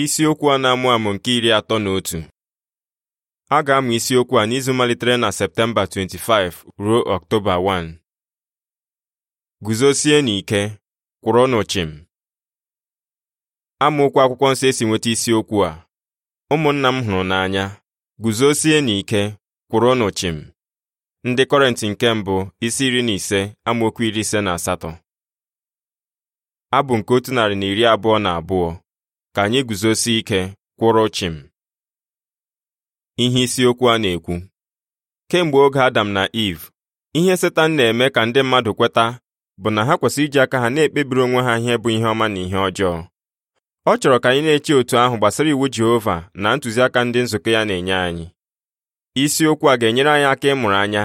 isiokwu a na-amụ amụ nke iri atọ na otu a ga-amụ isiokwu a n'izu malitere na Septemba 25 ruo Ọktoba 1 guzosie n'ike kwụrụ chịm amaokwu akwụkwọ nsọ esi nweta isiokwu a ụmụnna m hụrụ n'anya guzosie n'ike kwụrụ chịm ndị Kọrentị nke mbụ isi iri na ise amaokwu iri ise na asatọ abụ nke otu narị na iri abụọ na abụọ ka anyị guzosie ike kwụrụ chim ihe isiokwu a na-ekwu kemgbe oge Adam na Iv, ihe Setan na-eme ka ndị mmadụ kweta bụ na ha kwesịrị iji aka ha na-ekpebiri onwe ha ihe bụ ihe ọma na ihe ọjọọ ọ chọrọ ka anyị na-eche otu ahụ gbasara iwu Jehova na ntụziaka ndị nzukọ ya na-enye anyị isiokwu a ga-enyere anyị aka ịmụrụ anya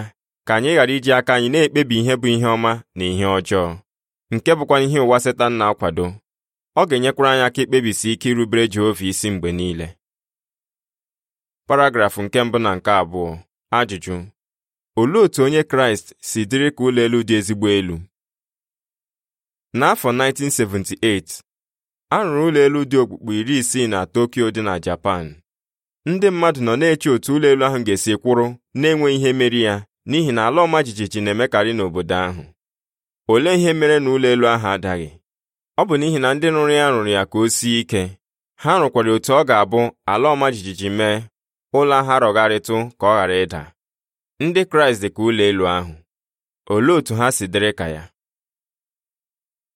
ka anyị ghara iji aka anyị na-ekpebi ihe bụ ihe ọma na ihe ọjọọ nke bụkwa ihe ụwa Setan na-akwado ọ ga-enyekwara anyị aka ikpebisi ike irubere Jehova isi mgbe niile paragrafụ nke mbụ na nke abụọ ajụjụ olee otu onye Kraịst si dịrị ka ụlọ elu dị ezigbo elu n'afọ 1978 a rụrụ ụlọ elu dị okpukpe iri isii na Tokyo dị na Japan ndị mmadụ nọ na-eche otu ụlọ elu ahụ ga-esi kwụrụ na-enweghị ihe meri ya n'ihi na ala ọma jijiji na-emekarị n'obodo ahụ olee ihe mere na ụlọ elu ahụ adaghị ọ bụ n'ihi na ndị nụrụ ya rụrụ ya ka o sie ike ha rụkwara otu ọ ga-abụ ala ọma jijiji mee ụlọ ha rọgharịtụ ka ọ ghara ịda ndị kraịst dị ka ụlọ elu ahụ olee otu ha si dịrị ka ya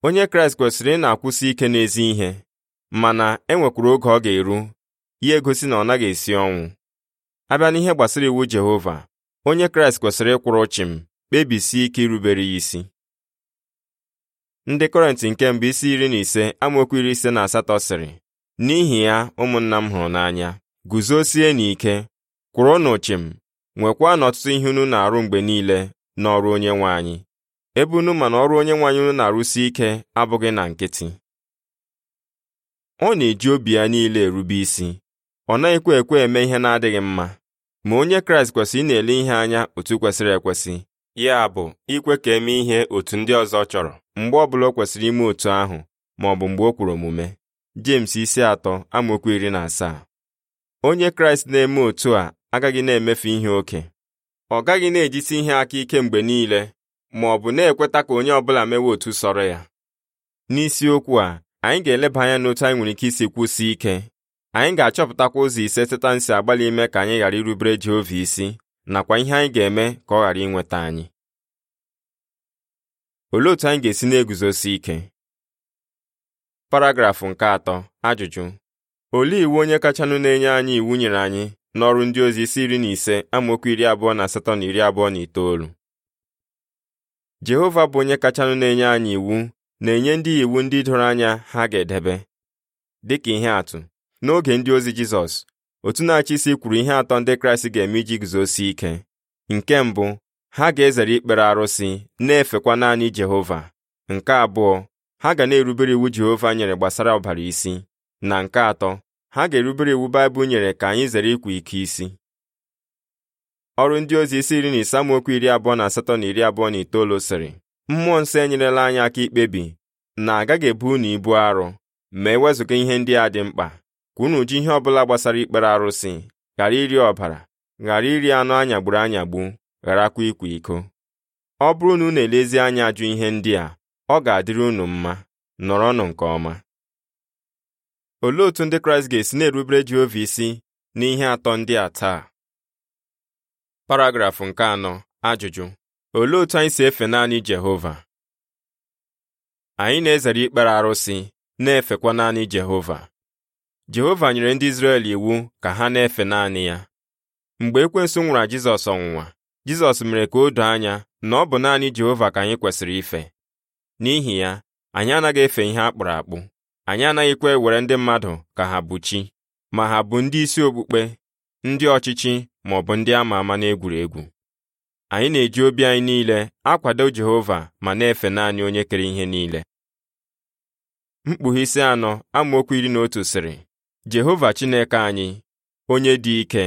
onye kraịst kwesịrị ị na-akwụsị ike n'ezi ihe mana e oge ọ ga-eru ya egosi na ọ naghị esi ọnwụ abịa n'ihe gbasara iwu jehova onye kraịst kwesịrị ịkwụrụ chịm kpebisie ike irubere ya isi ndị kọrentị nke mbụ isi iri na ise amaokwu iri ise na asatọ sịrị n'ihi ya ụmụnna m hụrụ n'anya guzosie n'ike kwụrụnụ chịm nwekwa na ọtụtụ ihe unu na-arụ mgbe niile n'ọrụ nwe anyị ebe unu ma na ọrụ onyenwe anyị unu na-arụsi ike abụghị na nkịtị ọ na-eji obi ya niile erube isi ọ naghịkwa ekwe eme ihe na-adịghị mma ma onye kraịst kwesịrị ị na-ele ihe anya otu kwesịrị ekwesị ya bụ ikwe ka eme ihe otu ndị ọzọ chọrọ mgbe ọbụla o kwesịrị ime otu ahụ ma ọ bụ mgbe o kwuru omume James isi atọ amaokwu iri na asaa onye Kraịst na-eme otu a agaghị na-emefu ihe oke ọ gaghị na-ejisi ihe aka ike mgbe niile ma ọ bụ na-ekweta ka onye ọbụla mewe otu sọrọ ya n'isiokwu a anyị ga-eleba anya n'otu anyị nwere ike isi kwụsị ike anyị ga-achọpụtakwa ụzọ ise setan si agbalị ime ka anyị ghara irubere Jehova isi nakwa ihe anyị ga-eme ka ọ ghara inweta anyị Olee otu anyị ga-esi na-eguzosi ike? Paragrafụ nke atọ ajụjụ olee iwu onye kachanụ na-enye anyị iwu nyere anyị n'ọrụ ndị ozi isi iri na ise amaokwu iri abụọ na asatọ na iri abụọ na itoolu Jehova bụ onye kachanụ na-enye anyị iwu na-enye ndị iwu ndị doro anya ha ga-edebe dịka ihe atụ n'oge ndị ozi Jizọs otu na-achị isi kwuru ihe atọ ndị Kraịst ga-eme iji guzosi ike nke mbụ ha ga-ezere ikpere arụsị na-efekwa naanị Jehova nke abụọ ha ga na-erubere iwu Jehova nyere gbasara ọbara isi na nke atọ ha ga-erubere iwu Baịbụl nyere ka anyị zere ịkwa ike isi ọrụ ndị ozi isi iri na isamokwu iri abụọ na asatọ na iri abụọ na itoolu sịrị mmụọ nsọ enyerela anyị aka ikpebi na agaghị ebu unu ibu arụ ma ewezụga ihe ndị a dị mkpa ka unu ji ihe ọ bụla gbasara ikpere arụsị ghara iri ọbara ghara iri anụ anyagburu anyagbu gharakwa ịkwa iko ọ bụrụ na unu elezi anya ajụ ihe ndị a ọ ga-adịrị unu mma nọrọnụ nke ọma olee otú ndị kraịst ga-esi na-erubere jehova isi n'ihe atọ ndị a taa paragrafụ nke anọ ajụjụ olee otú anyị si efe naanị jehova anyị na-ezere ikpere arụsị na-efekwa naanị jehova jehova nyere ndị izrel iwu ka ha na-efe naanị ya mgbe ekwensu nwụrụ jizọs ọnwụnwa jizọs mere ka o doo anya na ọ bụ naanị jehova ka anyị kwesịrị ife n'ihi ya anyị anaghị efe ihe a kpụrụ akpụ anyị anaghịkwa ewere ndị mmadụ ka ha bụ chi ma ha bụ ndị isi okpukpe ndị ọchịchị ma ọ bụ ndị ama ama n'egwuregwu anyị na-eji obi anyị niile akwado jehova ma na-efe naanị onye kere ihe niile mkpughe isi anọ amaokwu iri na otu sịrị jehova chineke anyị onye dị ike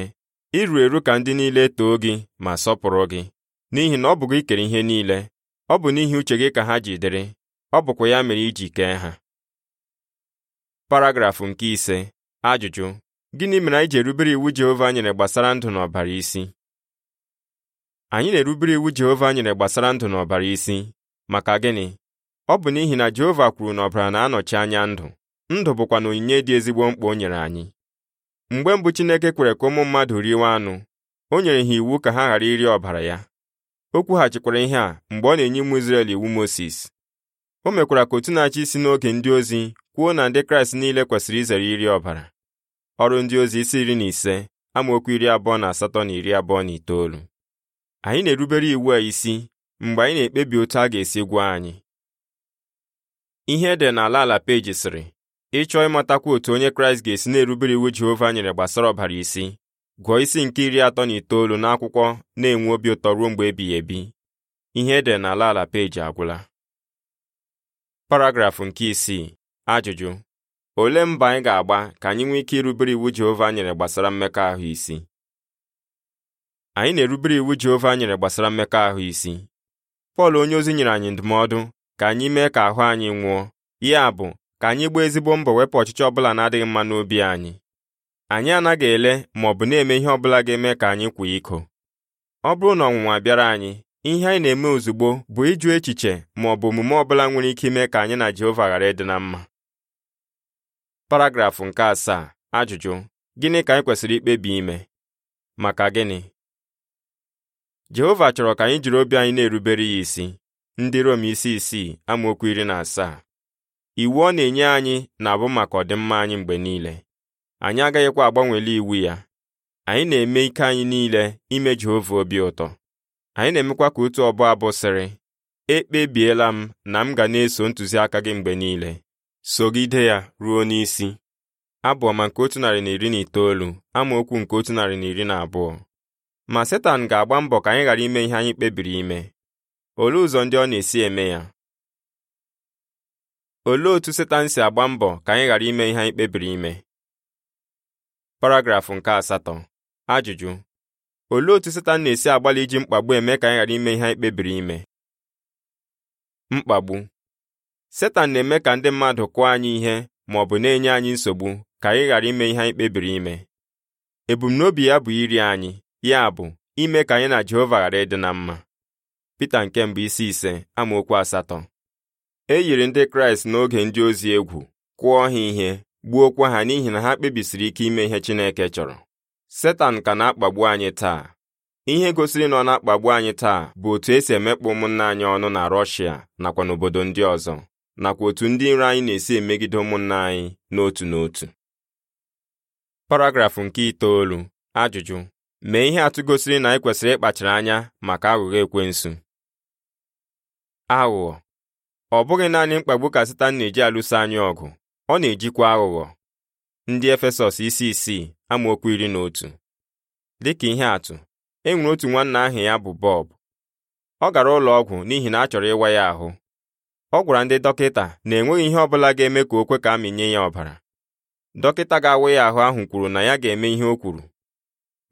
iru eru ka ndị niile too gị ma sọpụrụ gị n'ihi na ọ bụ gị kere ihe niile ọ bụ n'ihi uche gị ka ha ji dịrị ọ bụkwa ya mere iji kee ha paragrafụ nke ise ajụjụ gịnị mere anyị ji erubere iwu Jehova nyere gbasara ndụ na ọbara isi anyị na-erubere iwu Jehova nyere gbasara ndụ na ọbara isi maka gịnị ọ bụ n'ihi na Jehova kwuru na ọbara na-anọchi anya ndụ ndụ bụkwa na onyinye dị ezigbo mkpa o nyere anyị mgbe mbụ Chineke kwere ka ụmụ mmadụ riwe anụ o nyere ha iwu ka ha ghara iri ọbara ya o kwughachikwara ihe a mgbe ọ na-enye ụmụ Izrel iwu Mosis o mekwara ka otu na-achị isi n'oge ndị ozi kwuo na ndị Kraịst niile kwesịrị izere iri ọbara ọrụ ndị ozi isi iri na ise amaokwu iri abụọ na asatọ na iri abụọ na itoolu anyị na-erubere iwu a isi mgbe anyị na-ekpebi otu a ga-esi gwa anyị ihe ede n'ala ala peji sịrị ịchọọ ịmatakwa otu onye kraịst ga-esi na-erubere iwu jehova nyere gbasara ọbara isi gụọ isi nke iri atọ na itoolu n'akwụkwọ na-enwe obi ụtọ ruo mgbe ebighị ebi ihe edere n'ala ala peji agwụla paragrafụ nke isii ajụjụ olee mba anyị ga-agba ka anyị nwee ike irubere iwu jehova nyere gbasara mmekọahụ isi anyị na-erubere iwu jehova nyere gbasara mmekọahụ isi pọl onye ozi nyere anyị ndụmọdụ ka anyị mee ka ahụ anyị nwụọ ya bụ ka anyị gbaa ezigbo mbọ wepụ ọchịchị ọbụla na-adịghị mma n'obi anyị anyị anaghị ele ma ọ bụ na-eme ihe ọbụla ga-eme ka anyị kwụ iko ọ bụrụ na ọnwụnwa bịara anyị ihe anyị na-eme ozugbo bụ ịjụ echiche ma ọ bụ omume ọbụla nwere ike ime ka anyị na Jehova ghara ịdị na mma paragrafụ nke asaa ajụjụ gịnị ka anyị kwesịrị ikpebi ime maka gịnị Jehova chọrọ ka anyị jiri obi anyị na-erubere ya isi ndị Rom isi isii amaokwu iri na asaa iwu ọ na-enye anyị na-abụ maka ọdịmma anyị mgbe niile anyị agaghịkwa agbanwele iwu ya anyị na-eme ike anyị niile ime Jehova obi ụtọ anyị na-emekwa ka otu ọbụ abụ sịrị ekpebiela m na m ga na-eso ntụziaka gị mgbe niile sogide ya ruo n'isi abụọ ma nke otu narị na iri na itoolu amaokwu nke otu narị na iri na abụọ ma Setan ga-agba mbọ ka anyị ghara ime ihe anyị kpebiri ime olee ụzọ ndị ọ na-esi eme ya olee otu setan si agba mbọ ka anyị ghara ime ihe anyị kpebiri ime paragrafụ nke asatọ ajụjụ olee otu setan na-esi agbalị iji mkpagbu eme ka anyị ghara ime ihe anyị kpebiri ime mkpagbu setan na-eme ka ndị mmadụ kụọ anyị ihe ma ọ bụ na-enye anyị nsogbu ka anyị ghara ime ihe anyị kpebiri ime ebumnobi ya bụ iri anyị ya bụ ime ka anyị na Jehova ghara ịdị na mma Pita nke mbụ isi ise amaokwu asatọ e yiri ndị kraịst n'oge ndị ozi egwu kụọ ha ihe gbuokwa ha n'ihi na ha kpebisiri ike ime ihe chineke chọrọ setan ka na-akpagbu anyị taa ihe gosiri na ọ na-akpagbu anyị taa bụ otu esi emekpa ụmụnne anyị ọnụ na rọshia nakwa n'obodo ndị ọzọ nakwa otu ndị iro anyị na-esi emegide ụmụnne anyị n'otu n'otu paragrafụ nke itoolu ajụjụ mee ihe atụ gosiri na anyị e kwesịrị ịkpachara anya maka aghụghọ ekwensu aghụghọ ọ bụghị naanị mkpagbu ka Setan na-eji alụso anyị ọgụ ọ na-ejikwa aghụghọ ndị Efesọs isi isii amaokwu iri na otu dịka ihe atụ e nwere otu nwanna aha ya bụ Bob ọ gara ụlọ ọgwụ n'ihi na a chọrọ ịwa ya ahụ ọ gwara ndị dọkịta na enweghị ihe ọ bụla ga-eme ka o kwe ka amịnye ya ọbara dọkịta ga-awa ya ahụ ahụ kwuru na ya ga-eme ihe o kwuru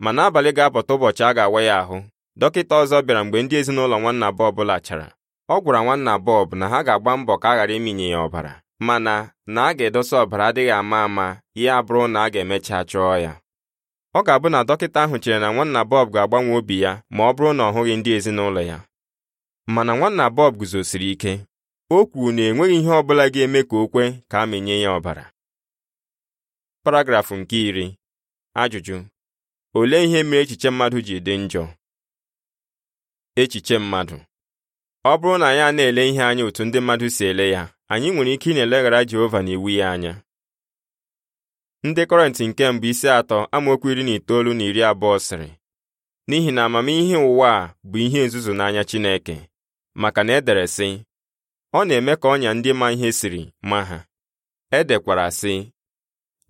ma n'abalị ga-apụta ụbọchị a ga-awa ya ahụ dọkịta ọzọ bịara mgbe ndị ezinụlọ nwanna Bob lachara ọ gwara nwanna Bob na ha ga-agba mbọ ka a ghara iminye ya ọbara mana na a ga-edosa ọbara adịghị ama ama ya bụrụ na a ga-emecha chọọ ya ọ ga-abụ na dọkịta ahụ chere na nwanna Bob ga-agbanwe obi ya ma ọ bụrụ na ọ hụghị ndị ezinụlọ ya mana nwanna Bob guzosiri ike o kwuru na enweghị ihe ọ bụla ga-eme ka o kwe ka a mịnye ya ọbara paragrafụ nke iri ajụjụ olee ihe mere echiche mmadụ ji dị njọ echiche mmadụ ọ bụrụ na anyị a na-ele ihe anya otu ndị mmadụ si ele ya anyị nwere ike ị na-eleghara Jehova na iwu ya anya ndị kọrentị nke mbụ isi atọ amaokwu iri na itoolu na iri abụọ sịrị n'ihi na amamihe ụwa a bụ ihe nzuzu n'anya Chineke maka na edere sị ọ na-eme ka ọnya ndị ma ihe siri ma ha edekwara sị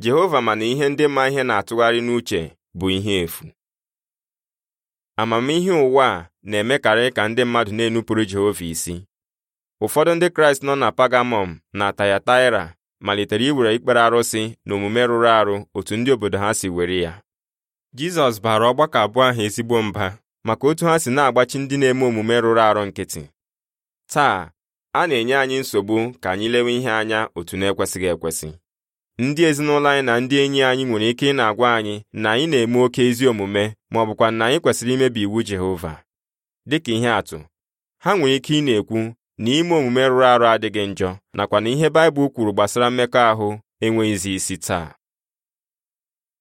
Jehova mana ihe ndị ma ihe na-atụgharị n'uche bụ ihe efu amamihe ụwa a na-emekarị ka ndị mmadụ na-enupụrụ Jehova isi ụfọdụ ndị Kraịst nọ na Pagamọm na Tayataira malitere iwere ikpere arụsị na omume rụrụ arụ otu ndị obodo ha si were ya Jizọs baara ọgbakọ abụọ ahụ ezigbo mba maka otu ha si na-agbachi ndị na-eme omume rụrụ arụ nkịtị taa a na-enye anyị nsogbu ka anyị lewe ihe anya otu na-ekwesịghị ekwesị ndị ezinụlọ anyị na ndị enyi anyị nwere ike ị na-agwa anyị na anyị na-eme oke ezi omume ma ọ bụkwa na anyị kwesịrị imebi iwu Jehova dịka ihe atụ ha nwere ike ị na-ekwu na ime omume rụrụ arụ adịghị njọ nakwa na ihe Baịbụl kwuru gbasara mmekọahụ enweghịzi isi taa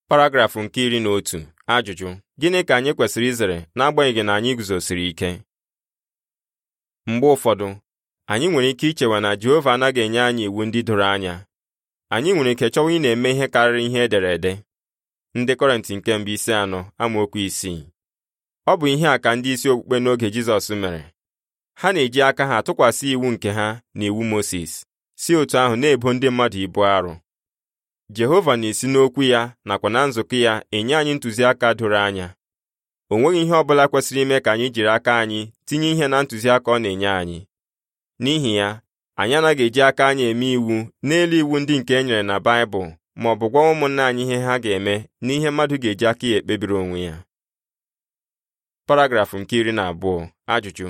paragrafụ nke iri na otu ajụjụ gịnị ka anyị kwesịrị izere n'agbanyeghị na anyị guzosiri ike mgbe ụfọdụ anyị nwere ike ichewa na Jehova anaghị enye anyị iwu ndị doro anya anyị nwere ike chọwa ị na-eme ihe karịrị ihe ederede ndị kọrentị nke mbụ isi anọ amaokwu isii ọ bụ ihe a ka ndị isi okpukpe n'oge Jizọs mere ha na-eji aka ha tụkwasị iwu nke ha na iwu moses si otu ahụ na-ebo ndị mmadụ ibu arụ Jehova na-esi n'okwu ya nakwa na nzukọ ya enye anyị ntụziaka doro anya o nweghị ihe ọ bụla kwesịrị ime ka anyị jiri aka anyị tinye ihe na ntụziaka ọ na-enye anyị n'ihi ya anyị anaghị eji aka anyị eme iwu n'elu iwu ndị nke e nyere na Baịbụl ma ọ bụ gwa ụmụnna anyị ihe ha ga-eme n'ihe mmadụ ga-eji aka ya ekpebiri onwe ya paragrafụ nke iri na abụọ ajụjụ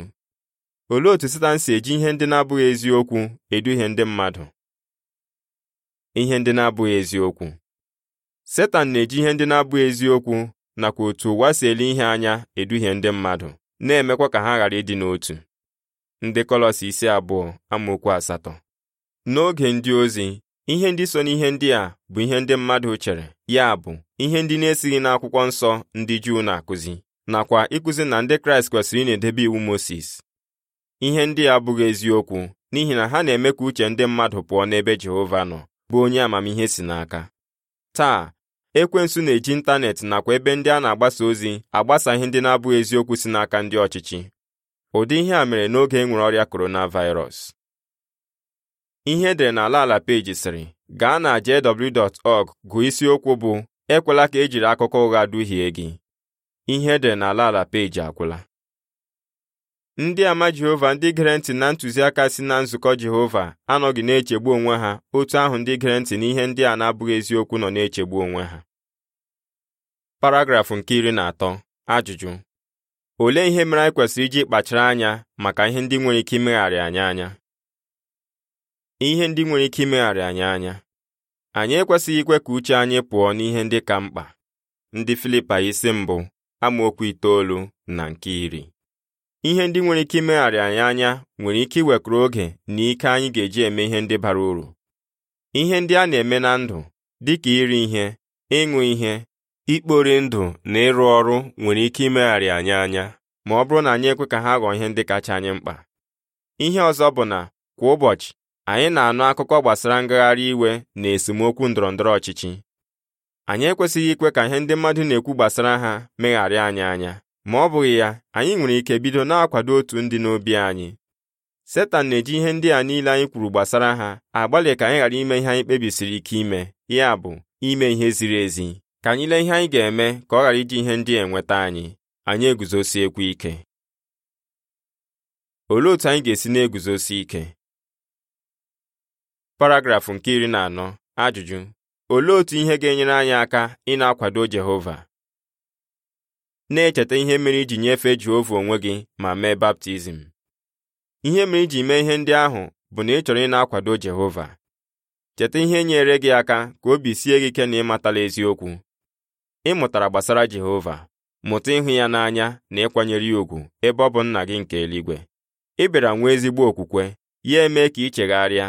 olee otu Setan si eji ihe ndị na-abụghị eziokwu eduhie ndị mmadụ ihe ndị na-abụghị eziokwu Setan na-eji ihe ndị na-abụghị eziokwu nakwa otu ụwa si ele ihe anya eduhie ndị mmadụ na-emekwa ka ha ghara ịdị n'otu ndị kọlọs isi abụọ amaokwu asatọ n'oge ndị ozi ihe ndị so n'ihe ndị a bụ ihe ndị mmadụ chere ya bụ ihe ndị na-esighị n'akwụkwọ nsọ ndị Juu na-akụzi nakwa ịkụzi na ndị Kraịst kwesịrị ị na-edebe iwu Mosis ihe ndị a abụghị eziokwu n'ihi na ha na-eme ka uche ndị mmadụ pụọ n'ebe Jehova nọ bụ onye amamihe si n'aka taa ekwensu na-eji ịntanetị nakwa ebe ndị a na-agbasa ozi agbasa ihe ndị na-abụghị eziokwu si n'aka ndị ọchịchị ụdị ihe a mere n'oge e nwere ọrịa coronavirus ihe edere n'ala ala peji sịrị gaa na jw.org gụọ isiokwu bụ ekwela ka e jiri akụkọ ụgha duhie gị ihe edere n'ala ala peji akwụla. ndị ama Jehova ndị gere ntị na ntụziaka si na nzukọ Jehova anọghị na-echegbu onwe ha otu ahụ ndị gere ntị n'ihe ndị a na-abụghị eziokwu nọ na-echegbu onwe ha paragrafụ nke iri na atọ ajụjụ olee ihe mere anyị kwesịrị iji kpachara anya maka ihe ndị nwere ike imegharị anyị anya ihe ndị nwere ike imegharị anyị anya anyị ekwesịghị ikwe ka uche anyị pụọ n'ihe ndị ka mkpa ndị Filipa isi mbụ amaokwu itoolu na nke iri ihe ndị nwere ike imegharị anyị anya nwere ike iwekwuru oge na ike anyị ga-eji eme ihe ndị bara uru ihe ndị a na-eme na ndụ dị ka iri ihe ịṅụ ihe ikpori ndụ na ịrụ ọrụ nwere ike imegharị anyị anya ma ọ bụrụ na anyị ekwe ka ha ghọọ ihe ndị kacha anyị mkpa ihe ọzọ bụ na kwa ụbọchị anyị na-anụ akụkọ gbasara ngagharị iwe na esemokwu ndọrọ ndọrọ ọchịchị anyị ekwesịghị ikwe ka ihe ndị mmadụ na-ekwu gbasara ha megharịa anyị anya ma ọ bụghị ya anyị nwere ike bido na-akwado otu ndị n'obi anyị setan na-eji ihe ndị a niile anyị kwuru gbasara ha agbalị ka anyị ghara ime ihe anyị kpebisiri ike ime ya bụ ime ihe ziri ezi ka anyị lee ihe anyị ga-eme ka ọ ghara iji ihe ndị enweta anyị anyị eguzosiekwu ike olee otu anyị ga-esi na-eguzosi ike paragrafụ nke iri na anọ ajụjụ olee otu ihe ga-enyere anyị aka ị akwado Jehova na-echeta ihe mere iji nyefee Jehova onwe gị ma mee baptizim ihe mere iji mee ihe ndị ahụ bụ na ị chọrọ ị na-akwado Jehova cheta ihe nyere gị aka ka obi sie gị ike na ịmatala eziokwu ị mụtara gbasara Jehova mụta ịhụ ya n'anya na ịkwanyere ya ùgwù ebe ọ bụ nna gị nke eluigwe ị bịara nwee ezigbo okwukwe ya emee ka ị chegharịa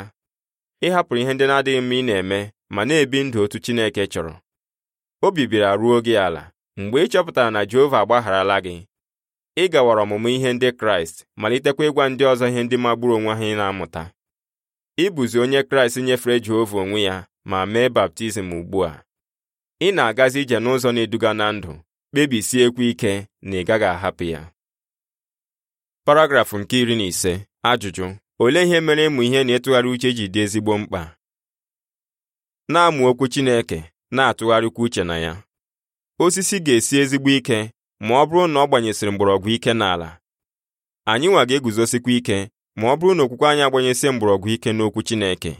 ị hapụrụ ihe ndị na-adịghị mma ị na-eme ma na-ebi ndụ otu Chineke chọrọ obi bịara ruo gị ala mgbe ị chọpụtara na Jehova agbagharala gị ị gawara ọmụmụ ihe ndị Kraịst malitekwa ịgwa ndị ọzọ ihe ndị magburu onwe ha ị na-amụta ịbụzi onye Kraịst nyefere Jehova onwe ya ma mee baptizim ugbu a ị na-agazi ije n'ụzọ na-eduga na ndụ kpebisiekwa ike na ị gaghị ahapụ ya paragrafụ nke iri na ise ajụjụ olee ihe mere ịmụ ihe na-etụgharị uche ji dị ezigbo mkpa na-amụ okwu Chineke na-atụgharịkwa uche na ya osisi ga-esi ezigbo ike ma ọ bụrụ na ọ gbanyesịrị mgbọrọgwụ ike n'ala anyị nwa ga-eguzosikwa ike ma ọ bụrụ na okwukwe anyị agbanyesị mgbọrọgwụ ike n'okwu Chineke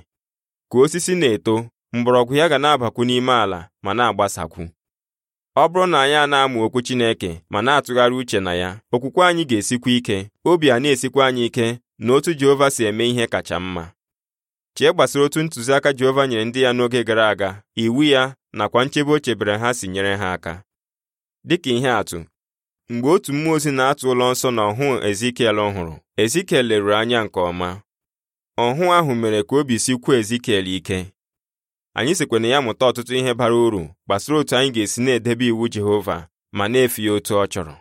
ka osisi na-eto mgbọrọgwụ ya ga na-abakwu n'ime ala ma na-agbasakwu ọ bụrụ na anyị a na-amụ okwu Chineke ma na-atụgharị uche na ya okwukwe anyị ga-esikwa ike obi a na-esikwa anyị ike na otu Jehova si eme ihe kacha mma chee gbasara otu ntụziaka Jehova nyere ndị ya n'oge gara aga iwu ya nakwa nchebe o chebere ha si nyere ha aka dịka ihe atụ mgbe otu mmụọ ozi na-atụ ụlọ nsọ na ọhụ Ezikiel ọhụrụ, Ezikiel leruru anya nke ọma ọhụ ahụ mere ka obi sikwuo Ezikiel ike anyị sikwa ya mụta ọtụtụ ihe bara uru gbasara otu anyị ga-esi na-edebe iwu Jehova ma na-efe ya otu ọ chọrọ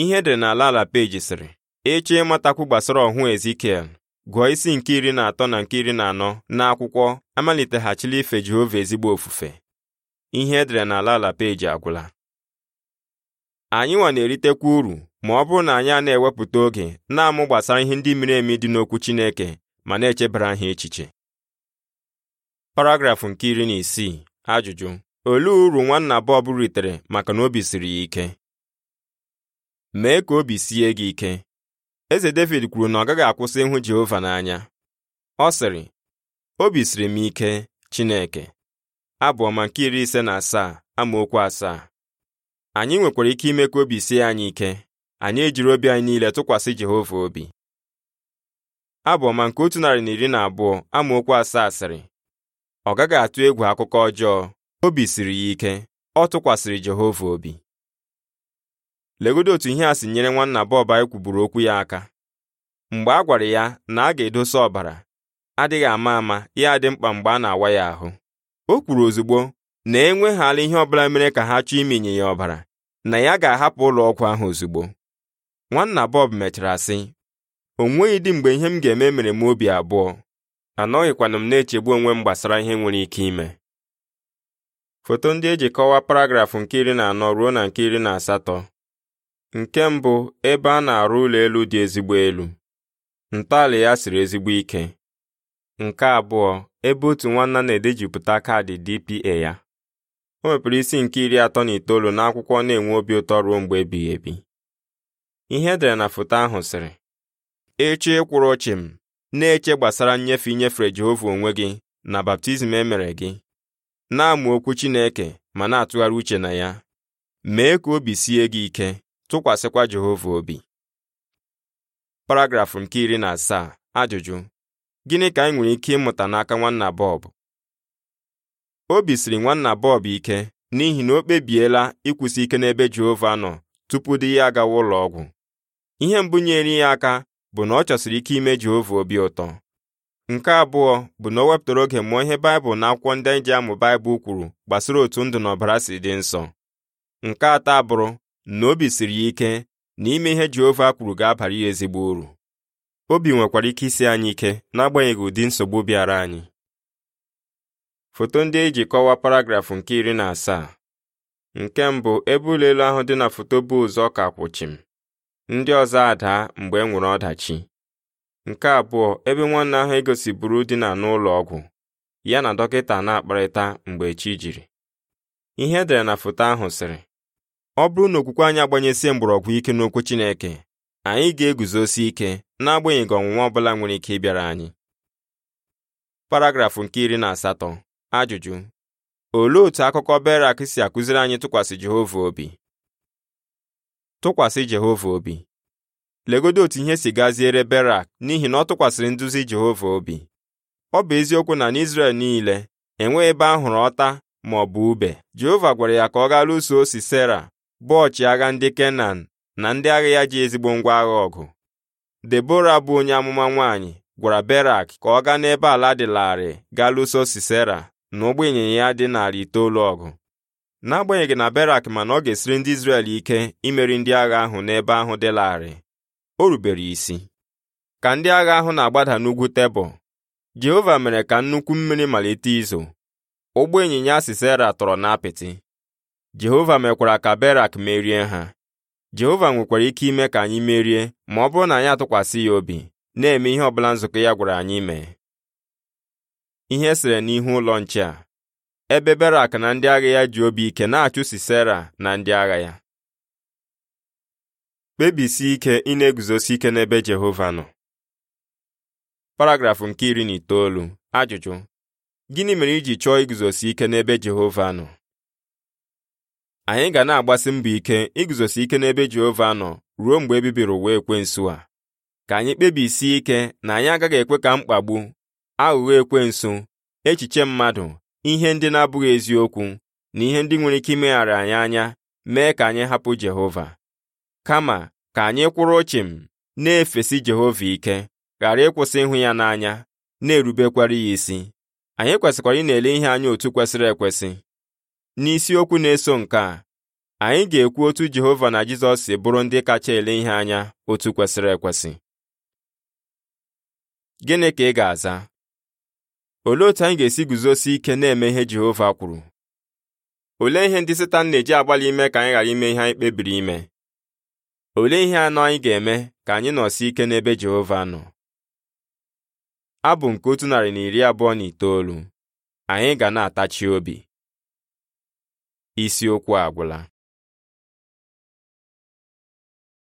ihe edere n'ala ala peji sịrị ịchọ e ịmatakwu gbasara ọhụụ Ezikiel gụọ isi nke iri na atọ na nke iri na anọ n'akwụkwọ amaliteghachila ife Jehova ezigbo ofufe ihe edere n'ala ala peji agwụla anyị nwa na-eritekwa uru ma ọ bụrụ na anyị a na-ewepụta oge na-amụ gbasara ihe ndị miri emi dị n'okwu Chineke ma na-echebara ha echiche paragrafụ nke iri na isii ajụjụ olee uru nwanna Bob ritere maka na obi siri ya ike mee ka obi sie gị ike eze David kwuru na ọ gaghị akwụsị ịhụ Jehova n'anya ọ sịrị obi siri m ike Chineke abụọ ma nke iri ise na asaa amaokwu asaa anyị nwekwara ike ime ka obi sie anyị ike anyị ejiri obi anyị niile tụkwasị Jehova obi abụọ ma nke otu narị na iri na abụọ amaokwu asaa sịrị ọ gaghị atụ egwu akụkọ ọjọọ obi siri ya ike ọ tụkwasịrị Jehova obi legodo otu ihe a si nyere nwanna bọb anyị kwuburu okwu ya aka mgbe a gwara ya na a ga-edosa ọbara adịghị ama ama ya dị mkpa mgbe a na-awa ya ahụ o kwuru ozugbo na enweghịala ihe ọbụla mere ka ha chọọ iminye ya ọbara na ya ga-ahapụ ụlọ ọgwụ ahụ ozugbo nwanna bọb mechara sị o nweghị dị mgbe ihe m ga-eme mere m obi abụọ anọghịkwanụ m na-echegbu onwe m gbasara ihe nwere ike ime foto ndị eji kọwaa paragrafụ nke iri na anọ ruo na nke iri na asatọ nke mbụ ebe a na-arụ ụlọ elu dị ezigbo elu ntọala ya siri ezigbo ike nke abụọ ebe otu nwanna na-edejupụta kaadị DPA ya o mepere isi nke iri atọ na itoolu n'akwụkwọ na-enwe obi ụtọ ruo mgbe ebighị ebi ihe edere na foto ahụ sịrị echi ịkwụrụ ọchị m na-eche gbasara nnyefe inyefe Jehova onwe gị na baptizim e mere gị na-amụ okwu Chineke ma na-atụgharị uche na ya mee ka obi sie gị ike tụkwasịkwa Jehova obi paragrafụ nke iri na asaa ajụjụ gịnị ka anyị nwere ike ịmụta n'aka nwanna Bob obi siri nwanna bọb ike n'ihi na o kpebiela ịkwụsị ike n'ebe Jehova nọ tupu di ya agawa ụlọ ọgwụ ihe mbụ nyere ya aka bụ na ọ chọsiri ike ime Jehova obi ụtọ nke abụọ bụ na o wepụtara oge mụọ ihe Baịbụl na akwụkwọ ndị anyị e ji amụ Baịbụl kwuru gbasara otu ndụ na ọbara si dị nsọ nke atọ abụrụ na obi siri ya ike na ime ihe Jehova kwuru ga-abara ya ezigbo uru obi nwekwara ike isi anyị ike n'agbanyeghị ụdị nsogbu bịara anyị foto ndị eji kọwaa paragrafụ nke iri na asaa nke mbụ ebe ụlọ elu ahụ dị na foto bụ ụzọ ka kwụchim ndị ọzọ adaa mgbe e nwere ọdachi nke abụọ ebe nwanne ahụ egosiburu dina n'ụlọ ọgwụ ya na dọkịta na-akparịta mgbe chi jiri ihe edere na foto ahụ sịrị ọ bụrụ na okwukwe anyị agbanyesie mgbọrọgwụ ike n'okwu Chineke anyị ga-eguzosi ike n'agbanyeghị ọnwụnwa ọ bụla nwere ike ịbịara anyị paragrafụ nke iri na asatọ ajụjụ olee otu akụkọ Berak si akụziri anyị tụkwasị Jehova obi tụkwasị Jehova obi legodo otu ihe si gaziere Berak n'ihi na ọ tụkwasịrị nduzi Jehova obi ọ bụ eziokwu na n'Izrel niile enweghị ebe a hụrụ ọta ma ọ bụ ube Jehova gwara ya ka ọ gaa lụso Sisera bụ ọchịagha ndị Kenan na ndị agha ya ji ezigbo ngwa agha ọgụ Debora bụ onye amụma nwaanyị gwara Berak ka ọ gaa n'ebe ala dị larịị gaa lụso Sisera na ụgbọ ịnyịnya ya dị narị itoolu ọgụ n'agbanyeghị na berak ma na ọ ga-esiri ndị Izrel ike imeri ndị agha ahụ n'ebe ahụ dị larịị o rubere isi ka ndị agha ahụ na-agbada n'ugwu tebụl Jehova mere ka nnukwu mmiri malite izo ụgbọ ịnyịnya Sisera tọrọ n'apịtị Jehova mekwara ka berak merie ha Jehova nwekwara ike ime ka anyị merie ma ọ bụrụ na anyị atụkwasị ya obi na-eme ihe ọbụla nzukọ ya gwara anyị mee ihe esere n'ihu ụlọ nche a ebe Berak na ndị agha ya ji obi ike na-achụsi Sera na ndị agha ya kpebisi ike ịna na-eguzosi ike n'ebe Jehova nọ paragrafụ nke iri na itoolu ajụjụ gịnị mere iji chọọ iguzosi ike n'ebe Jehova nọ anyị ga na-agbasi mbọ ike iguzosi ike n'ebe Jehova nọ ruo mgbe ebibiri ụwa ekwensu a ka anyị kpebisi ike na anyị agaghị ekwe ka mkpagbu aghụghọ ekwensu echiche mmadụ ihe ndị na-abụghị eziokwu na ihe ndị nwere ike imeghara anyị anya mee ka anyị hapụ Jehova kama ka anyị kwụrụ chịm na-efesi Jehova ike ghara ịkwụsị ịhụ ya n'anya na-erubekwara ya isi anyị kwesịkwara ịna ele ihe anya otu kwesịrị ekwesị n'isiokwu na-eso nke a anyị ga-ekwu otu Jehova na Jizọs si bụrụ ndị kacha ele ihe anya otu kwesịrị ekwesị gịnị ka ị ga-aza olee otu anyị ga-esi guzosi ike na-eme ihe Jehova kwuru olee ihe ndị Setan na-eji agbalị ime ka anyị ghara ime ihe anyị kpebiri ime olee ihe anọ anyị ga-eme ka anyị si ike n'ebe Jehova nọ abụ nke otu narị na iri abụọ na itoolu anyị ga na-atachi obi isiokwu agwụla